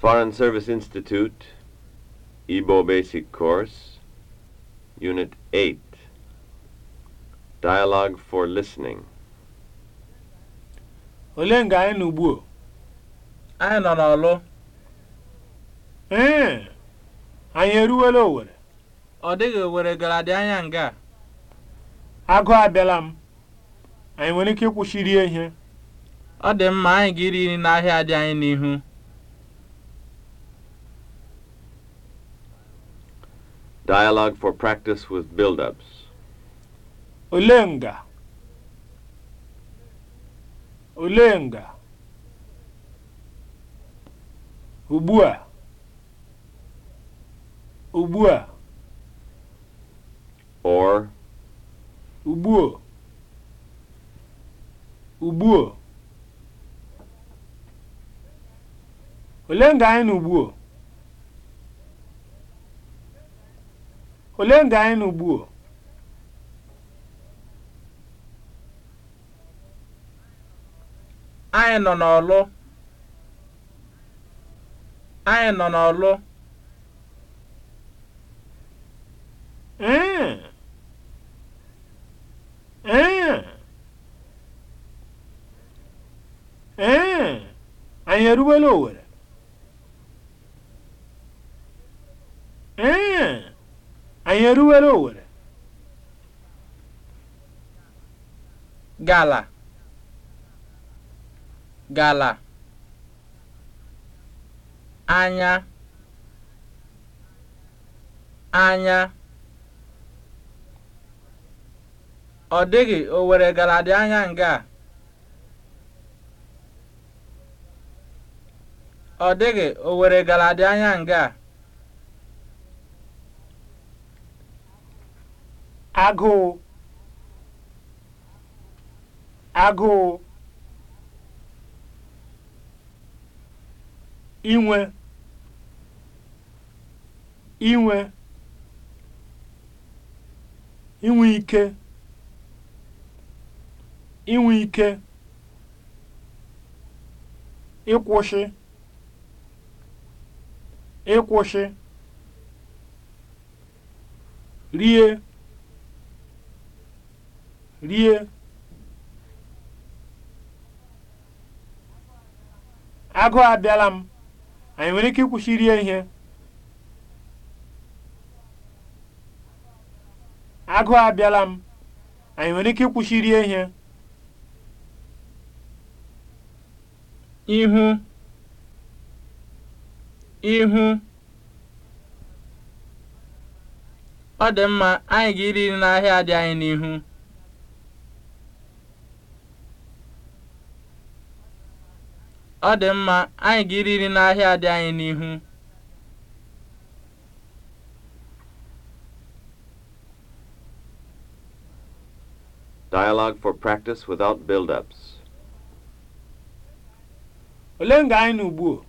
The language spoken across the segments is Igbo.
Foreign Service Institute, Igbo Basic Course, Unit 8, Dialogue for Listening. Olee nga anyị nọ ugbu Anyị nọ n'ọlụ. Ee, anyị eruwela Owere. Ọ dịghị Owere gara dị anya nga. Agụ abịala m. Anyị nwere ike ịkwụsị ihe. Ọ dị mma anyị ga iri n'ahịa dị anyị n'ihu. Dialogue for practice with build-ups. Olenga. Olenga. Ubua. Ubua. Or. Ubuo. Ubuo. Olenga anyị na ubuo. ole ndị anyị ugbu o? anyị nọ n'ọlụ anyị nọ n'ọlụ anyị eruwela owere ee Anyị eruwela owere? Gala. Gala. Anya. Anya. Ọ dịghị owere gala dị anya nga a. Ọ dịghị owere gala dị anya nga a. agụụ agụụ inwe inwe inwe ike inwe ike ịkwụsị ịkwụsị rie rie agụụ abịala m anyị nwere ike ịkwụsị rie ihe abịala m anyị nwere ike ihe ihu ihu ọ dị mma anyị ga-iri n'ahịa dị anyị n'ihu Ọ dị mma, anyị ga-eri nri n'ahịa dị anyị n'ihu. Dialogue for practice without build-ups. Olee nga anyị n'ugbu o?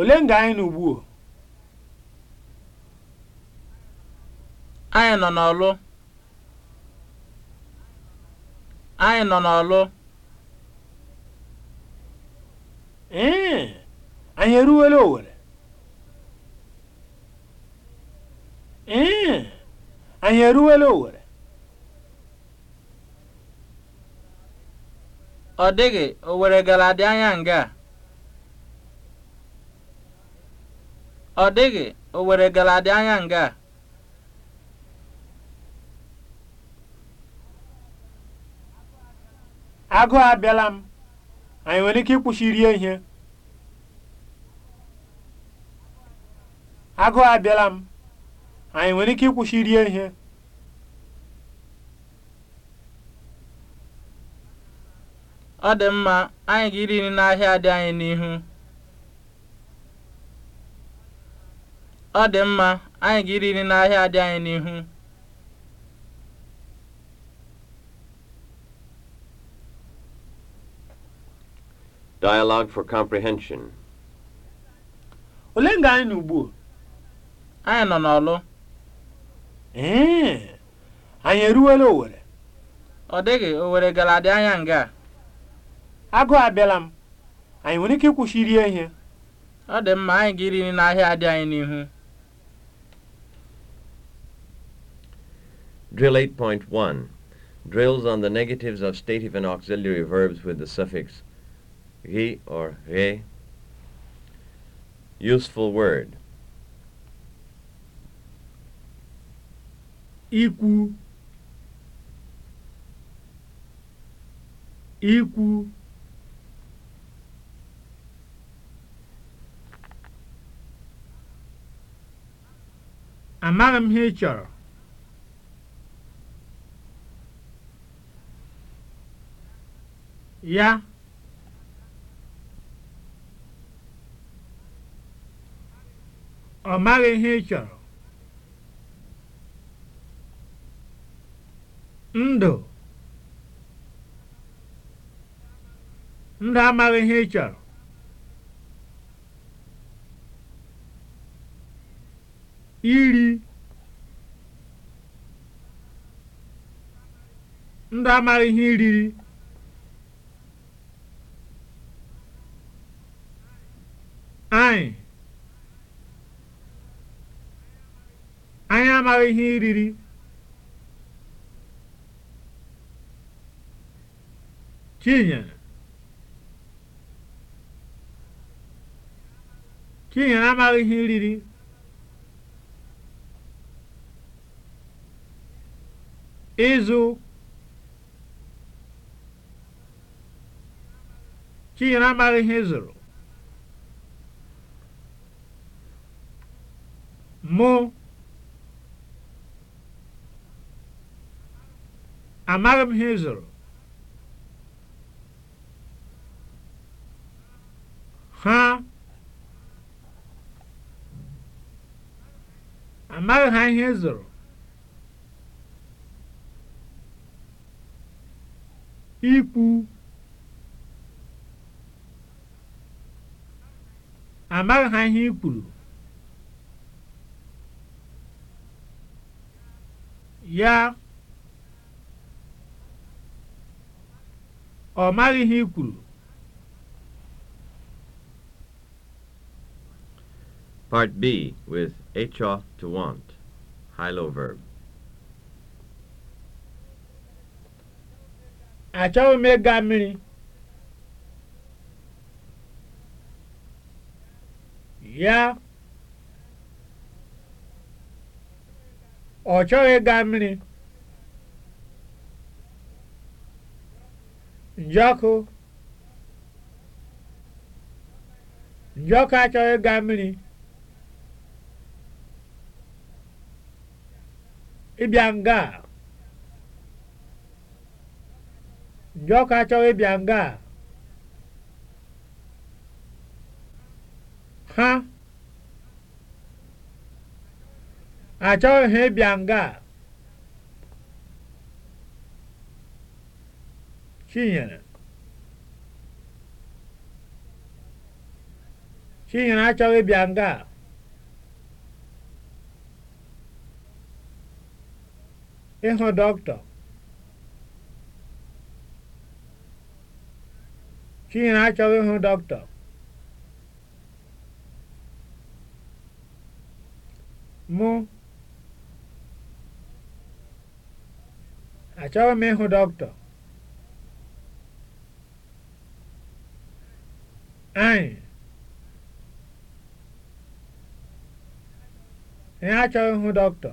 Olee anyị n'ugbu o? Anyị nọ n'ọlụ. Anyị nọ n'ọlụ. ee anyị eruwela Owerri ee anyị eruwela Owerri ọ dịghị Owerri gara dị anya nga ọ dịghị Owerri gara dị anya nga Agụ abịala m anyị nwere ike ịkwụsị ihe agụụ abịala m anyị nwere ike ịkwụsị rie ihe ọ mma anyị ga nri n'ahịa dị anyị n'ihu ọ dị mma anyị ga-iri nri n'ahịa dị anyị n'ihu Dialogue for comprehension. Ole nga anyị n'ugbu a. anyị nọ n'ọlụ ee anyị eruwela Owere ọ dịghị Owere gara dị anya nga Agụ abịala m anyị nwere ike ịkwụsị iri ihe ọ dị mma anyị ga-iri n'ahịa dị anyị n'ihu Drill 8.1 Drills on the negatives of stative and auxiliary verbs with the suffix he or he. Useful word ikwu ikwu amaghị m ihe chọrọ ya ọ maghị ihe ị chọrọ ndụ ndụ amaghị ihe ị chọrọ iri ndụ amaghị ihe iriri anyị anyị amaghị ihe iriri kinyere amaghị ihe riri. Ịzụ. Chinyere amaghị ihe ịzụrụ. Mụ. Amaghị m ihe ịzụrụ. ha amaghị ha ihe ị zụrụ ikwu amaghị ha ihe i ya ọ maghị ihe i Part B with echa to want, high-low verb. Achọghị m ịga mmiri. Ya. Ọ chọghị ịga mmiri. Njọkụ. Njọkụ achọghị ịga mmiri. ịbịa nga a ndị ọka achọghị ịbịa nga ha achọghị ha ịbịa nga Chinyere Chinyere achọghị ịbịa nga a ịhụ dọkịta Chinwe m ịhụ anyị achọghị ịhụ dọkịta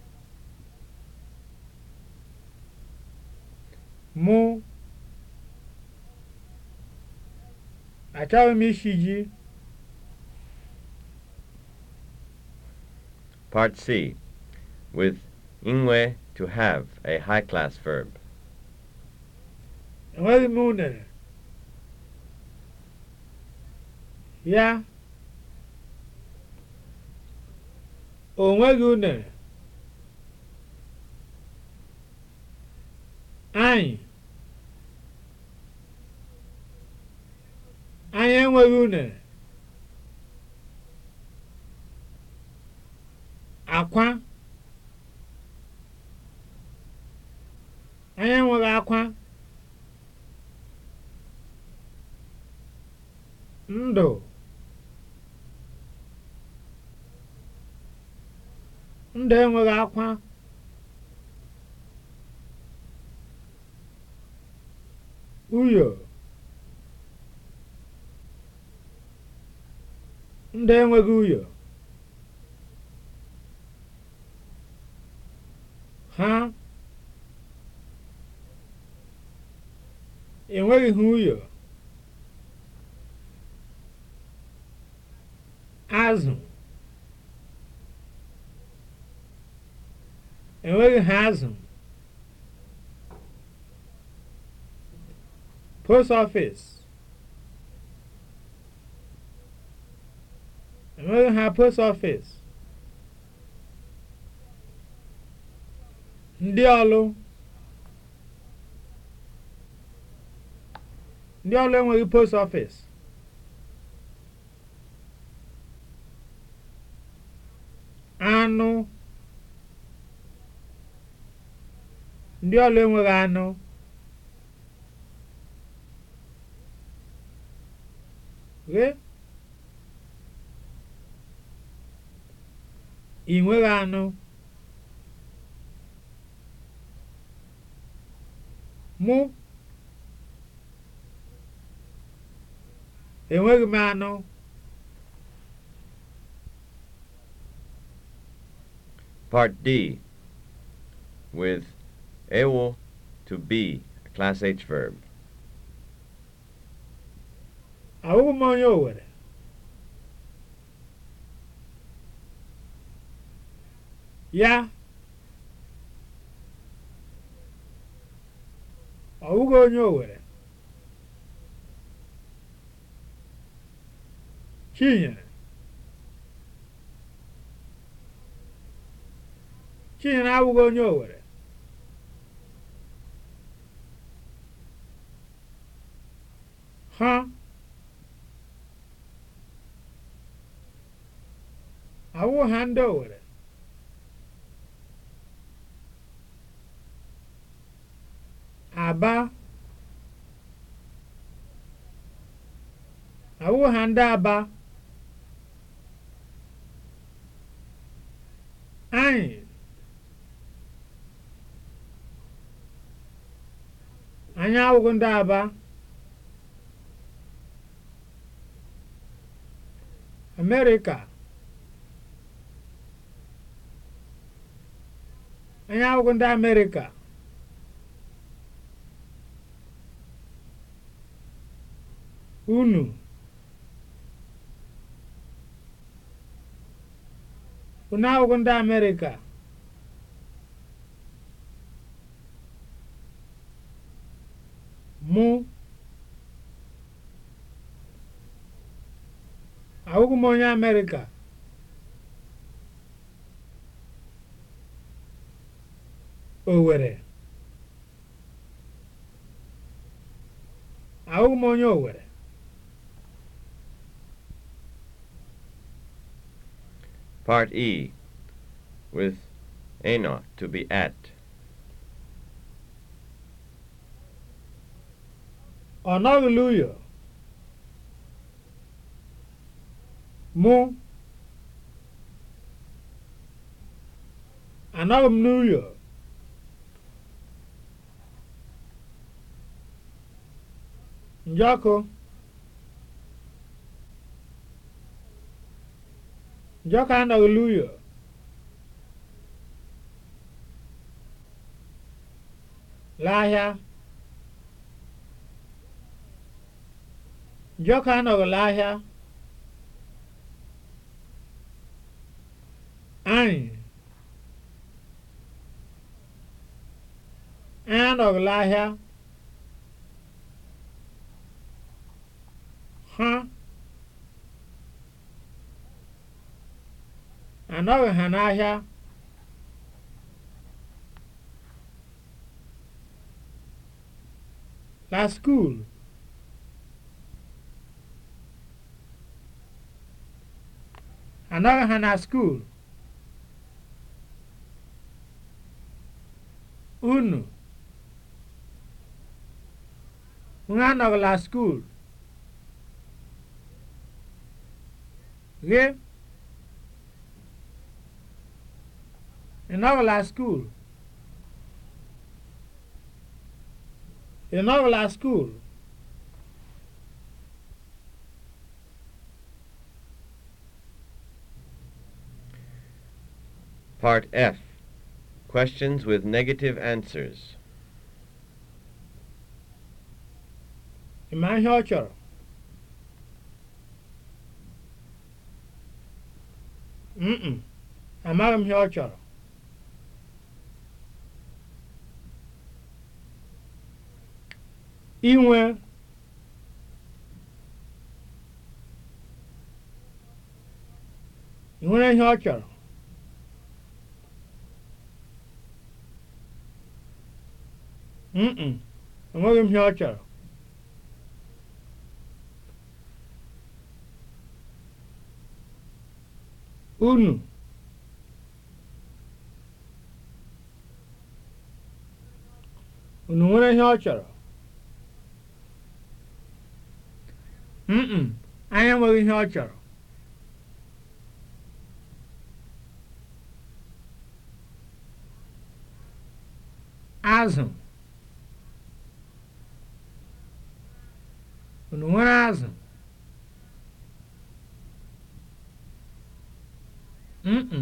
Mu achọghị m Part C with inwe to have a high class verb. Enweghị m Ya. O unere. Anyị Anyị enweghị unere. Akwa Anyị enweghị akwa. Ndụ Ndụ enweghị akwa. Uyo, ndị enweghị uyo, ha enweghị ha uyò azụ enweghị ha azụ post office enweghị ha post office ndị ọlụ ndị ọlụ enweghị post office anụ ndị ọlụ enweghị anụ ị anụ mụ enweghị m anụ Part D with ewo to be, a class H verb. Ahụghị m onye Owere. Ya, ọ bụghị onye Owere. Chinyere, Chinyere abụghị onye Owere. Ha. Huh? ọwụ ha ndị Owere Aba awụ ha ndị Aba anyị anyị awụghị ndị Aba Amerịka anyị abụghị ndị Amerịka unu unu abụghị ndị Amerịka mụ abụghị m onye Amerịka Owere ahụghị m onye Owere Part E with eno to be at ọ nọghịla uyo mụ anọghị m n'uyo njọkụ njọkụ anọghị n'ụyọ l'ahịa njọkụ anọghị l'ahịa anyị anọghị anọghị ha n'ahịa la skul! anọghị ha na skuul unu ha anọghị la skuul gị ị school skuul ị nọbụla skuul Part F Questions with Negative Answers. Ị ma ihe mm amaghị m ihe ọ chọrọ inwe nwere ihe ọ chọrọ mm enweghị m ihe ọ chọrọ unu unu nwere ihe ọ chọrọ mm anya nwere ihe ọ chọrọ azụ unu nwere azụ mkpụ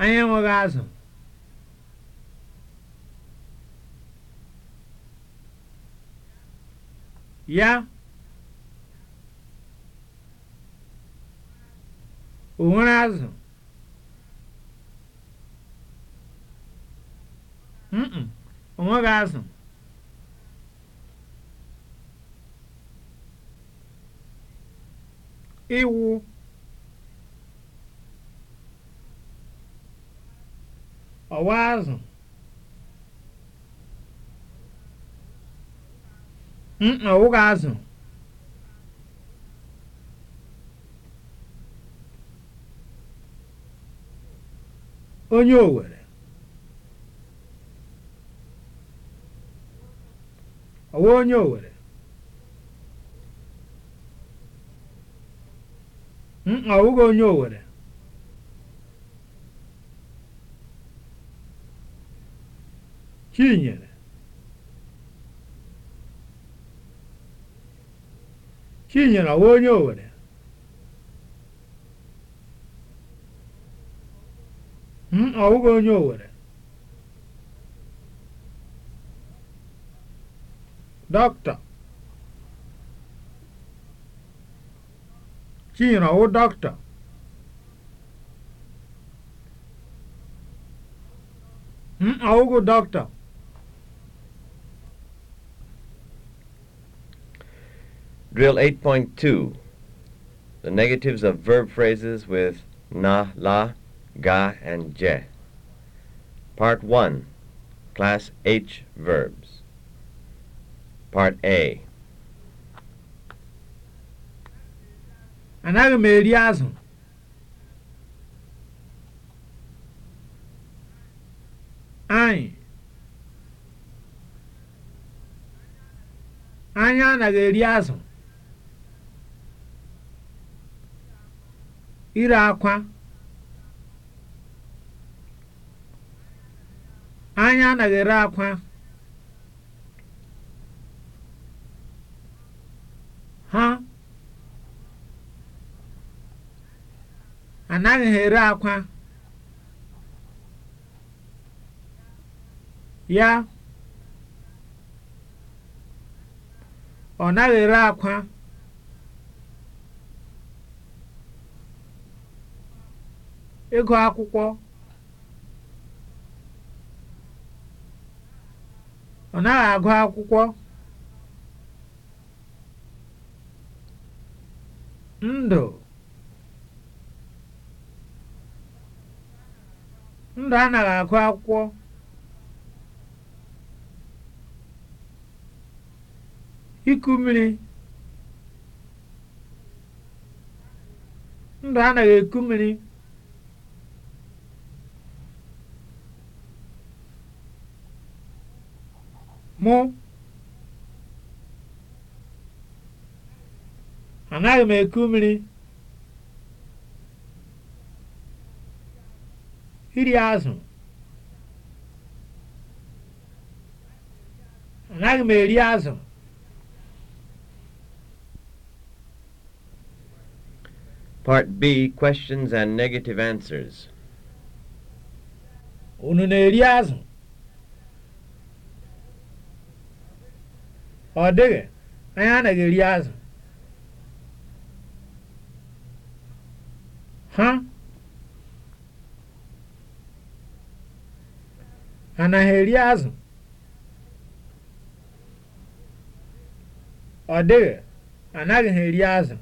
anyị enweghị azụ ya o nwere azụ o nweghị azụ iwu ọwa azụ ọwụghị azụ onye Owerri ọwa onye Owerri ọwụghị onye Owerri Chinyere. Chinyere ọwa onye Owere. m ọ bụghị onye Owere. Dọkịta. Chinyere ọwụ dọkịta. m ọ bụghị dọkịta. Drill 8.2 The negatives of verb phrases with na, la, ga, and je. Part 1 Class H verbs. Part A Anaghị m eri azụ. Anyị. Anyị eri ire akwa anya anaghị ere akwa ha anaghị ha akwa ya ọ naghị ere akwa ego akwụkwọ ọ naghị agụ akwụkwọ ndụ ndụ anaghị agụ akwụkwọ iku ndụ anaghị eku mmiri mụ anaghị m eku mmiri iri azụ anaghị m eri azụ Part B Questions and Negative Answers. Unu na-eri azụ? ọ dịghị anyị anaghị eri azụ ha anaghị eri azụ ọ dịghị anaghị ha eri azụ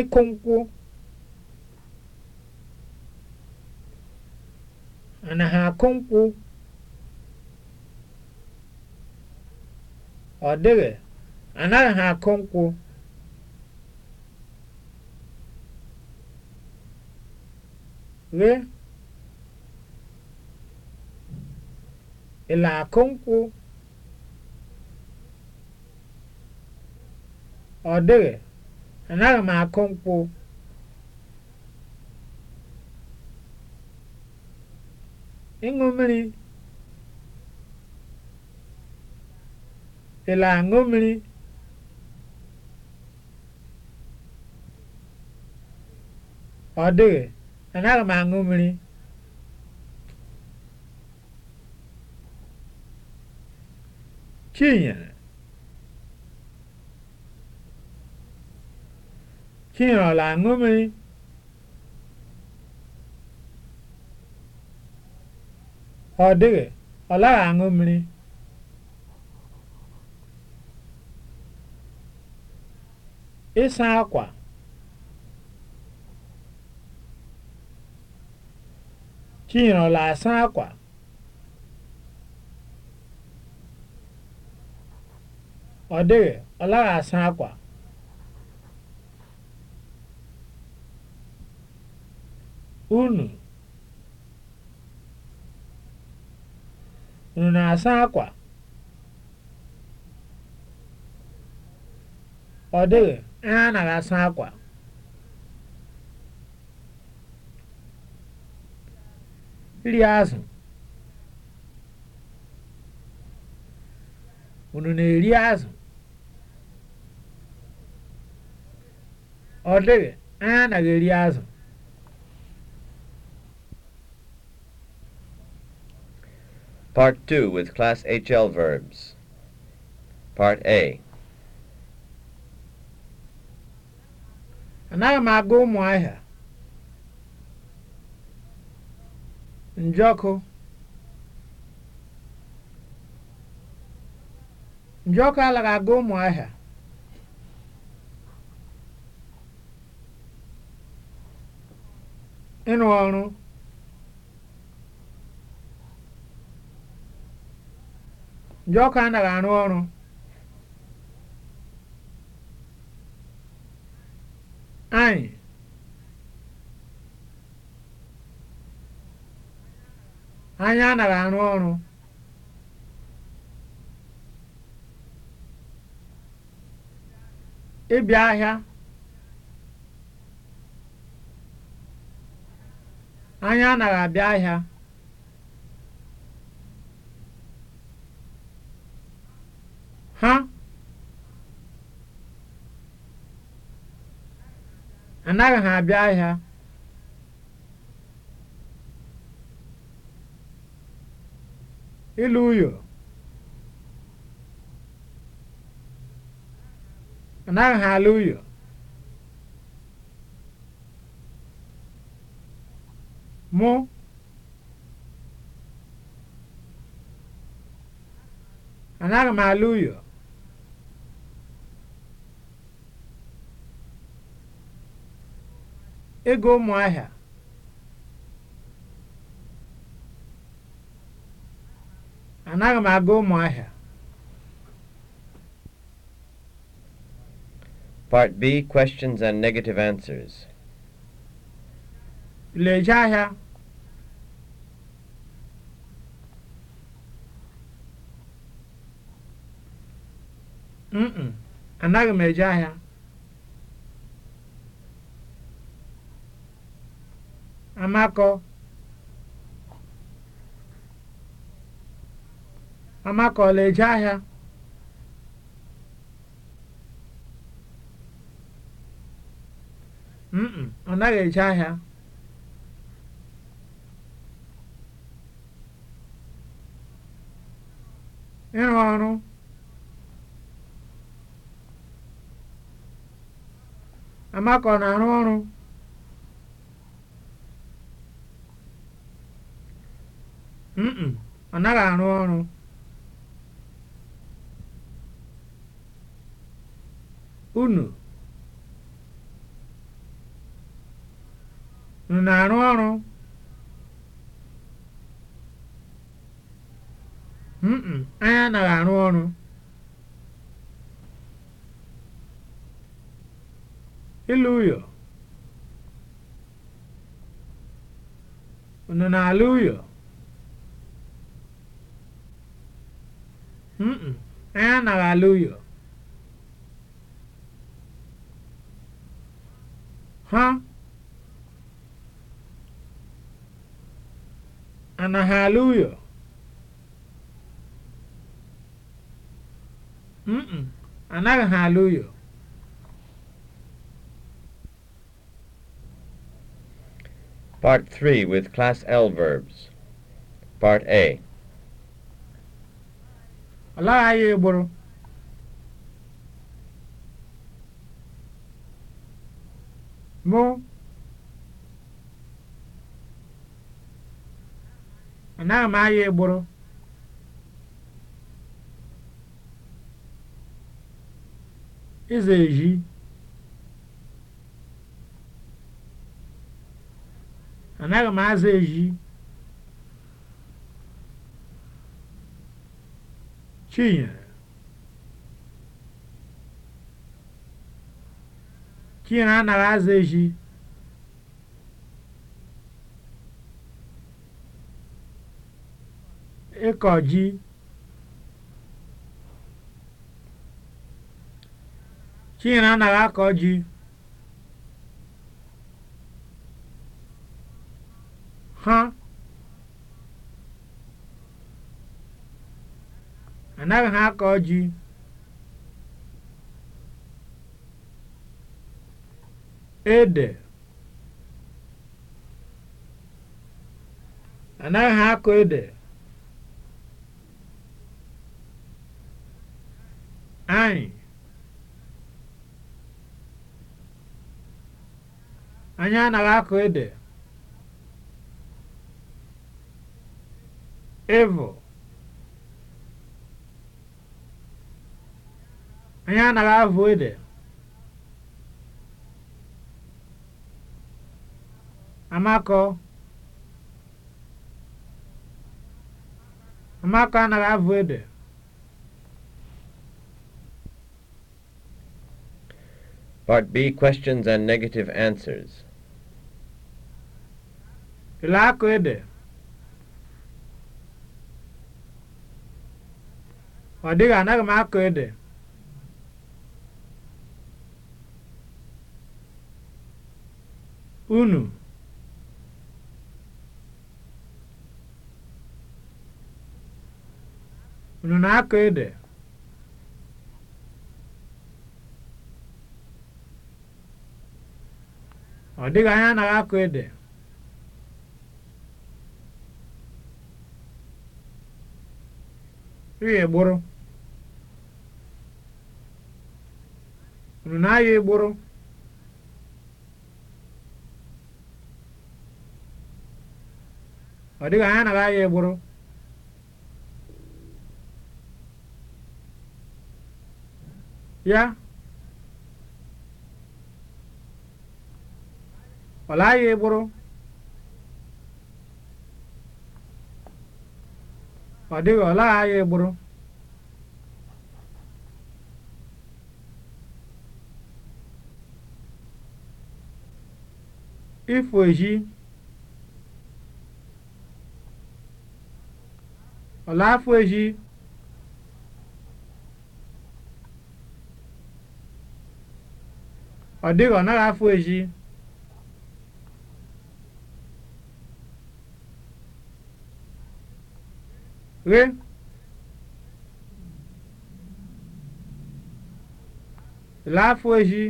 ịkụ nkwụ mana ha akụmkpụ ọ dịghị anaghị ha akụ nkwụ ghe ịla akụ nkwụ ọ dịghị anaghị m akụ nkwụ ịṅụ mmiri ị na-aṅụ mmiri ọ dịghị anaghị m aṅụ mmiri chinyere chinyere ọ na-aṅụ mmiri ọ dịghị ọ laghị aṅụ mmiri ịsa akwa chinyere asa akwa ọ dịghị ọ laghị asa akwa unu Unu na-asa akwa? Ọ dịghị, anyị anaghị asa akwa. Iri azụ. Unu na-eri azụ? Ọ dịghị, anyị anaghị eri azụ. Part 2 with Class HL verbs. Part A. Anaghị m aga ụmụahịa. Njọkụ. Njọkụ alaghị aga ụmụahịa. Ịrụ ọrụ. ọkụ anaghị arụ ọrụ anyị anyị anaghị arụ ọrụ ịbịa ahịa anyị anaghị abịa ahịa anaghị ha abịa ahịa ilu uyo anaghị ha ala uyo mụ anaghị m ala uyo ego ụmụahịa anaghị m aga ụmụahịa Part B questions and negative answers. Leje ahịa mm anaghị m eje ahia. Amakọ Amakọ ọ na-eje ahịa? Mm, ọ naghị eje ahịa. Ịrụ ọrụ Amakọ na-arụ ọrụ ọ naghị arụ ọrụ unu unu na-arụ ọrụ anyị anaghị arụ ọrụ ịlụ ụyọ unu na-alụ ụyọ Mm-mm, i anaghị alụ yo. Ha anaghị alụ yo. Mm-mm, anaghị Part 3 with Class L verbs. Part A. ọ laghaghị ịgbụrụ mụ anaghị m agha ịgbụrụ ịza anaghị m aza ezi Tinha. Tinha na Azeji. Ịkọji. Chinara anaghị akọ ji. Ha. anaghị ha akọ ji ede anaghị ha akọ ede anyị anyị anaghị akọ ede ịvụ Anyị anaghị avụ ede. Amako Amakọ anaghị avụ ede. Part B questions and negative answers. Ile akụ ede. Ọ dịghị anaghị m akụ ede. unu unu na-akọ ede ọ dịghị anya anaghị akọ ede ịghọ egboro unu na-ayọ egboro ọ dịghị anya na ya egburu ya ọ laghị egburu ọ dịghị ọ ifo eji Ọlafọji ọ dịghị ọ naghị afụ eji ghe laa eji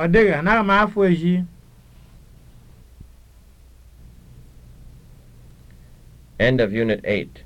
ọ dịghị anaghị m eji End of Unit 8.